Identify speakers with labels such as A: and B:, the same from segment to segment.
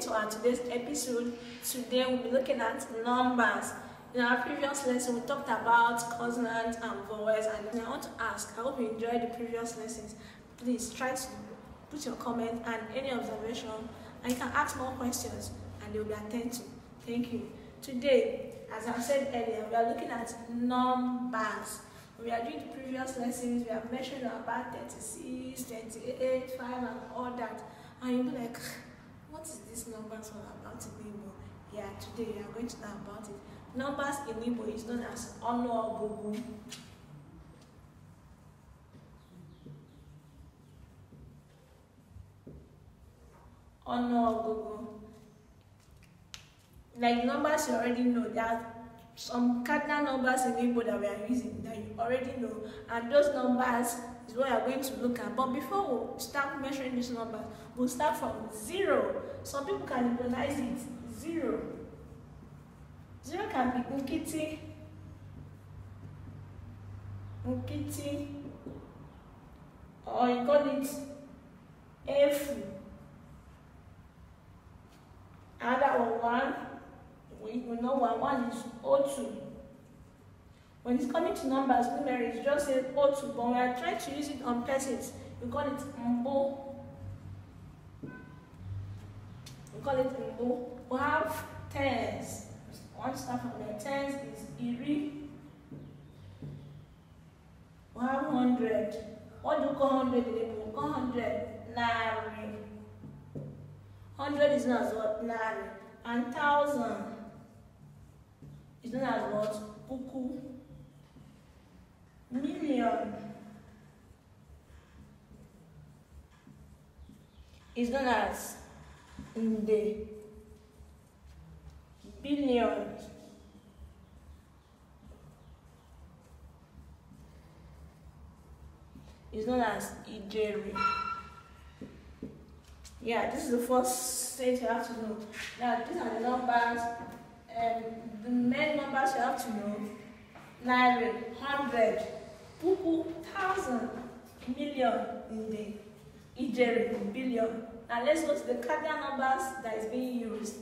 A: to our today's episode. Today we'll be looking at numbers. In our previous lesson, we talked about consonants and vowels, and I want to ask, I hope you enjoyed the previous lessons. Please try to put your comment and any observation, and you can ask more questions, and they will be attended to. Thank you. Today, as I said earlier, we are looking at numbers. We are doing the previous lessons, we have mentioned about 36, 28, 5, and all that. And you'll be like, What is this numbers all about in Igbo? Yeah, today we are going to talk about it. Numbers in Igbo is known as Onogugu. Onogugu. Like numbers you already know that some cardinal numbers in Igbo that we are using that you already know and those numbers is what we are going to look at but before we start measuring these numbers we'll start from zero some people can recognize it zero zero can be nkiti nkiti or you call it efu another one one we will know one. One is O2. When it's coming to numbers, numerics, just say O2, but when I try to use it on persons, we call it Mbo. We call it Mbo. We have tens. One start from the Tens is Iri. We have hundred. What do you call hundred? in Igbo? We call hundred Nari. Hundred is not what? Nari. And thousand
B: is known as what?
A: Buku. Million is known as Nde. Billion is known as Ijeri. Yeah, this is the first thing you have to know. Now, these are the numbers um, the main numbers you have to know naira hundred puku thousand million nde ijeri billion now let's go to the cardinal numbers that is being used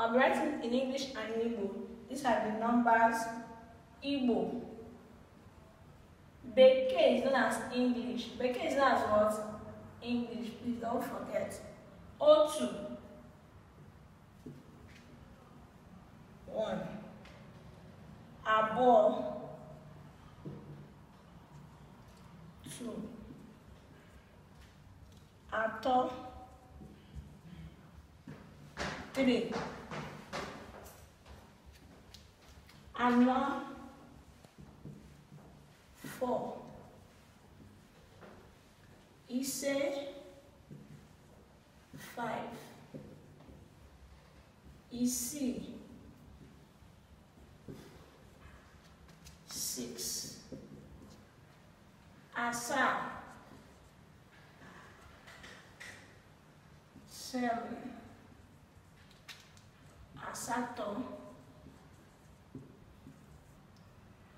A: i'm writing in english and in igbo these are the numbers igbo bekee is known as english bekee is known as what english please don't forget otu one àbọ̀ two àtọ̀ three àná four ìṣe five ìsì.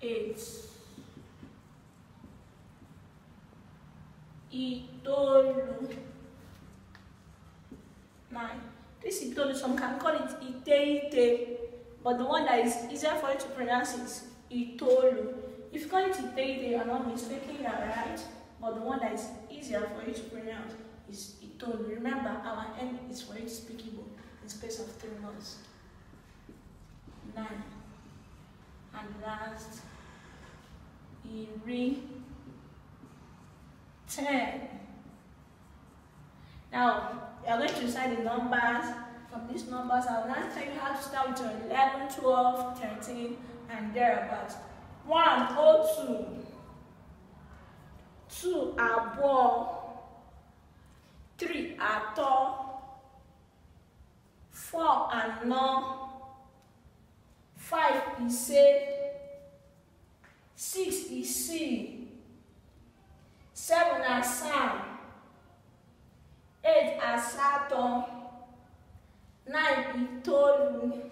A: eight ìtọ́lù nine this ìtọ́lù some can call it iteite, but the one that is easier for you to pronounce is ìtọ́lù if you call it ìtẹ́ìtẹ́ you are not mistaking that right but the one that is easier for you to pronounce is ìtọ́lù remember our aim is for you to speak Igbo in space of three months nine and last ìrì ten. Now, you are going to recite the numbers. From these numbers, I will now tell you how to start with your 11, 12, 13, and thereabouts. 1, O2. 2, Abo. 3, Ato. 4, Ano. 5, Ise. Six e is Seven ici, 7 Eight 5, 8 Nine is e 9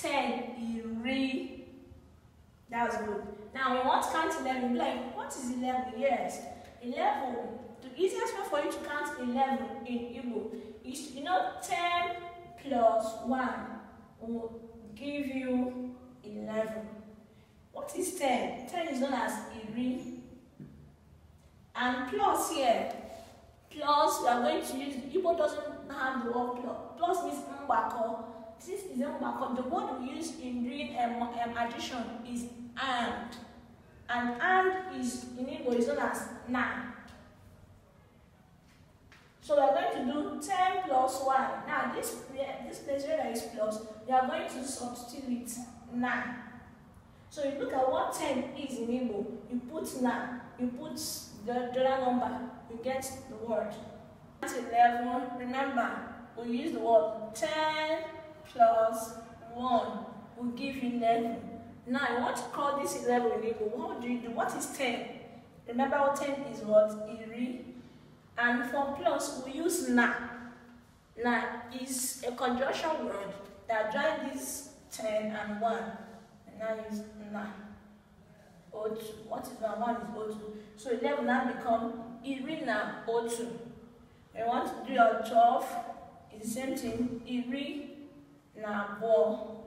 A: Ten is e Iri. That's good. Now, we want to count 11. Like, what is 11? Yes, 11. The easiest way for you to count 11 in Igbo is, you know, 10 plus 1 will give you 11. What is 10? 10 is known as iri. And plus here, plus we are going to use, Igbo doesn't have the word plus. Plus means mbako. This is mbako. The word we use in doing um, um, addition is and. And and is in Igbo is known as na. So we are going to do 10 plus 1. Now this, this place where there is plus, we are going to substitute with 9. So you look at what 10 is in Igbo, you put na, you put the, the number, you get the word. At 11, remember, we use the word 10 plus 1 will give you 11. Now, I want to call this 11 in Igbo, what do you do? What is 10? Remember what 10 is what? Iri. And for plus, we use na. Na is a conjunction word that joins these 10 and 1 nine is nine. O2. What is one? One is O2. So 11 now become Iri na O2. We want to do your 12. It's the same thing. Iri na Bo.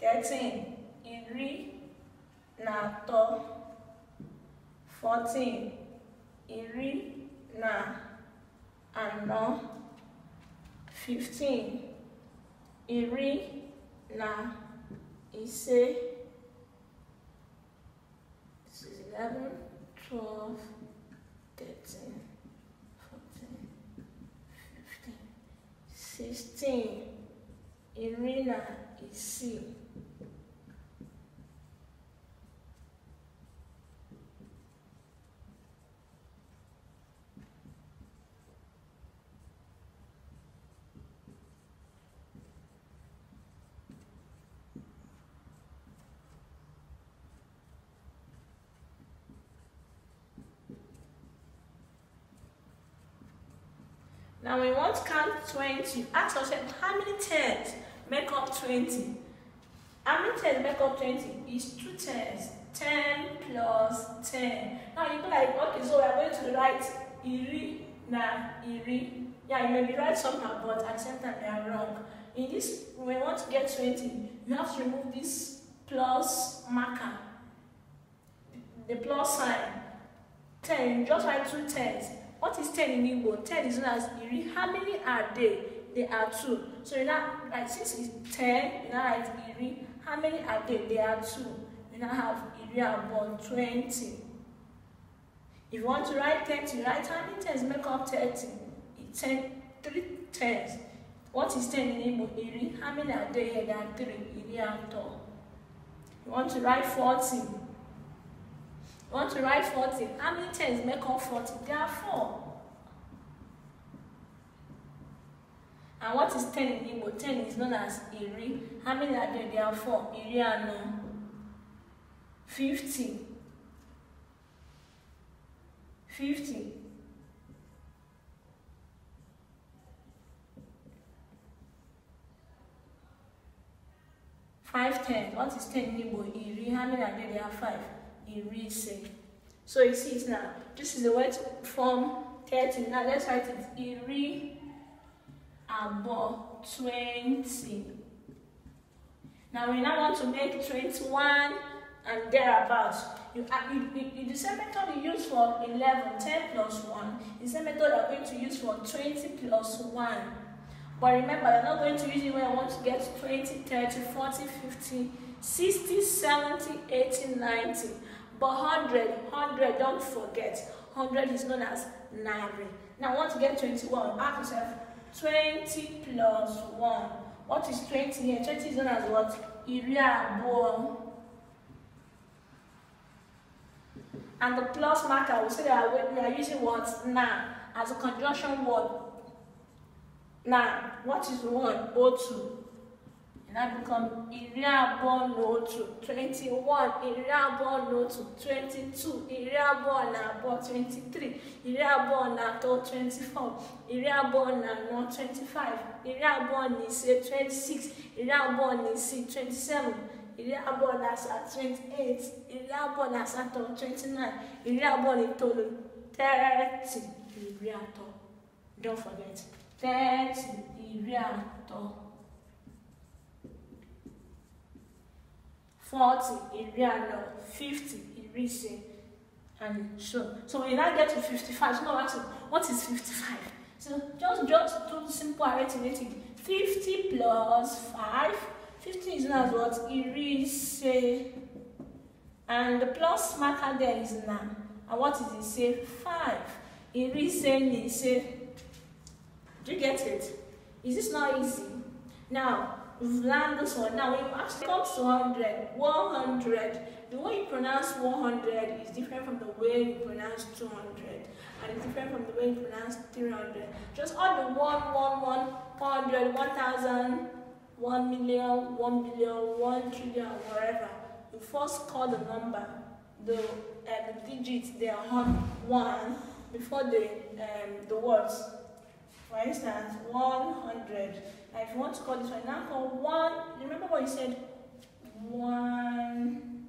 A: 13. Iri na To. 14. Iri na Ano. 15. Iri na ise eleven twelve thirteen fourteen fifteen sixteen iri na isii. Now we want to count 20. Ask yourself, how many 10 make up 20? How many 10 make up 20? It's two 10s. 10 plus 10. Now you'll be like, okay, so we're going to write iri na iri. Yeah, you may be right somehow, but accept that they are wrong. In this, we want to get 20, you have to remove this plus marker, the plus sign. 10, just write two tens. What is ten in Igbo? 10 is known as iri. How many are they? They are two. So you now, like, since it's ten, you now write iri. How many are they? They are two. You now have iri and twenty. If you want to write 30, write how many tens make up 30? ten, three tens. What is ten in Igbo? Iri. How many are they here? There are 3. Iri and tall. You want to write forty want to write 40. How many tens make up 40? There are four. And what is 10 in Igbo? 10 is known as Iri. How many are there? There are four. Iri and 50. Um, 50. Five ten. What is ten in Igbo? Iri. How many are there? There are five irise. So you see it now. This is the word form 30. Now let's write it iri above 20. Now we now want to make 21 and thereabouts. Uh, you, you, you, the same method you use for 11, 10 plus 1, the same method you're going to use for 20 plus 1. But remember, you're not going to use it when I want to get 20, 30, 40, 50, 60, 70, 80, 90. But 100, 100, don't forget. 100 is known as Naira. Now, I want to get 21. Ask yourself, 20 plus 1. What is 20 here? 20 is known as what? Iriabo. And the plus marker, we say that we are using what? Na as a conjunction word. Now, what is 1? O2. That becomes iriabo n'otu 21, iriabo n'otu 22, iriabo na abụọ 23, iriabo na atọ 24, iriabo na anọ 25, iriabo na ise 26, iriabo na isii 27, iriabo na asaa 28, iriabo na asatọ 29, iriabo na itoolu 30, iri atọ. Don't forget, 30, iri atọ. Forty, 40, Iriano, 50, Irise, and so. So we now get to 55, someone asks, what is fifty-five? So just, just do simple arithmetic. Fifty plus five. Fifty is known as what? Irise. And the plus marker there is 9. And what is it? Say Five. 5. Irise ni say. Do you get it? Is this not easy? Now, learn this one. Now, when you actually comes to 100, 100, the way you pronounce 100 is different from the way you pronounce 200, and it's different from the way you pronounce 300. Just all the 1, 1, 1, 100, 1,000, 1 million, 1 billion, 1 trillion, whatever. You first call the number, the, uh, the digits, they are on 1 before the, um, the words. For instance, 100. Now if you want to call this one, now call one, remember what you said, 100.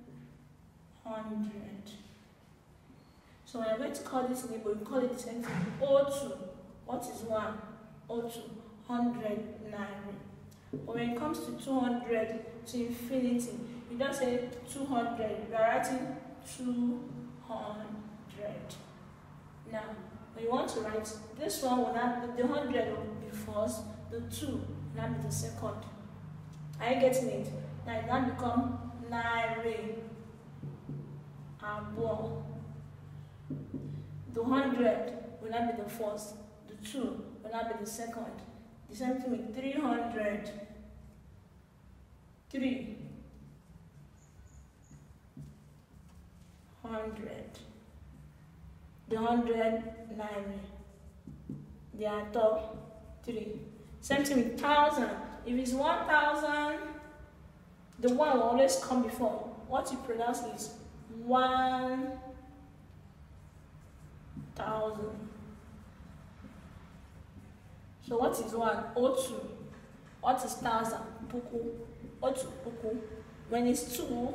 A: So I'm going to call this label, we call it the same thing, O2. What is O2, 100 naira. But when it comes to 200 to infinity, you don't say 200, you are writing 200. Now, when you want to write, this one will not the 100 the first, the two, now be the second. Are you getting it? Now it now become naira, abo. The hundred will not be the first, the two will not be the second. The same thing with 300, three, hundred. The hundred three. Same thing with thousand. If it's one thousand, the one will always come before. What you pronounce is one thousand. So what is one? O What is thousand? Puku. O two. puku. When it's two,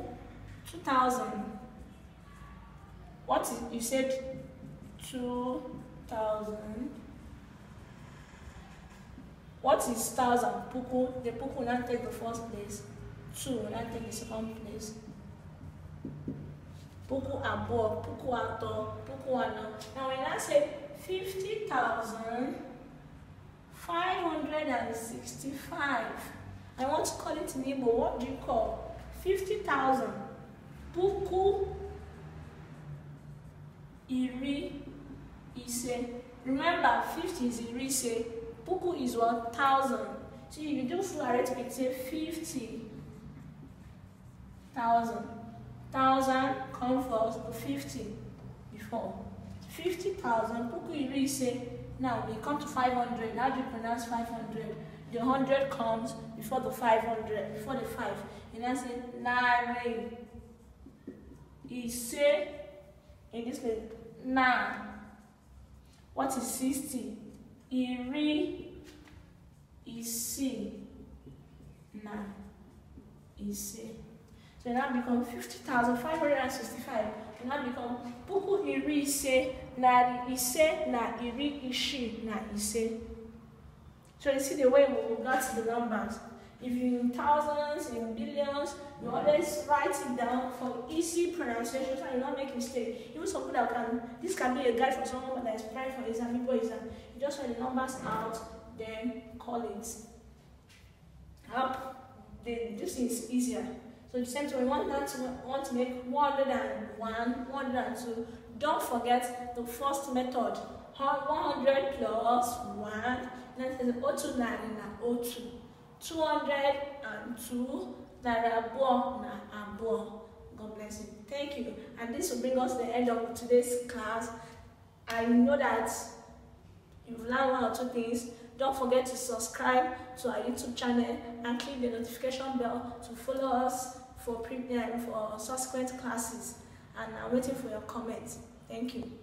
A: two thousand. What is you said two thousand What is thousand? Puku. The puku now take the first place. Two now take the second place. Puku above, puku ato, puku ano. Now when I say 50,565, I want to call it in Igbo. What do you call? 50,000. Puku iri ise. Remember, 50 is iri ise. Puku is thousand. So you do full arithmetic, say thousand 1,000 come first to 50 before. 50,000, Puku you really say, now we come to 500. How do you pronounce 500? The 100 comes before the 500, before the 5. And I say, Nare. say In this way, Na. What is 60? iri isii na ise so e now become fifty thousand five hundred and sixty-five e now become puku iri ise na ise na iri isii na ise so you see the way we got the numbers If you're in thousands, in billions, you always write it down for easy pronunciation so you don't make mistake. Even some people can, this can be a guide for someone that is praying for exam, people exam. You just write the numbers out, then call it. Up, then this is easier. So the same time, we want to make 101, 102. Don't forget the first method. 100 plus 1, that is 029 and 02. 202 naira abụọ na abụọ god bless you thank you and this will bring us the end of today's class i know that you've learned one or two things don't forget to subscribe to our youtube channel and click the notification bell to follow us for premium for subsequent classes and i'm waiting for your comments thank you